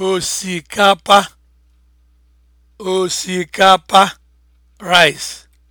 osikapa osikapa rice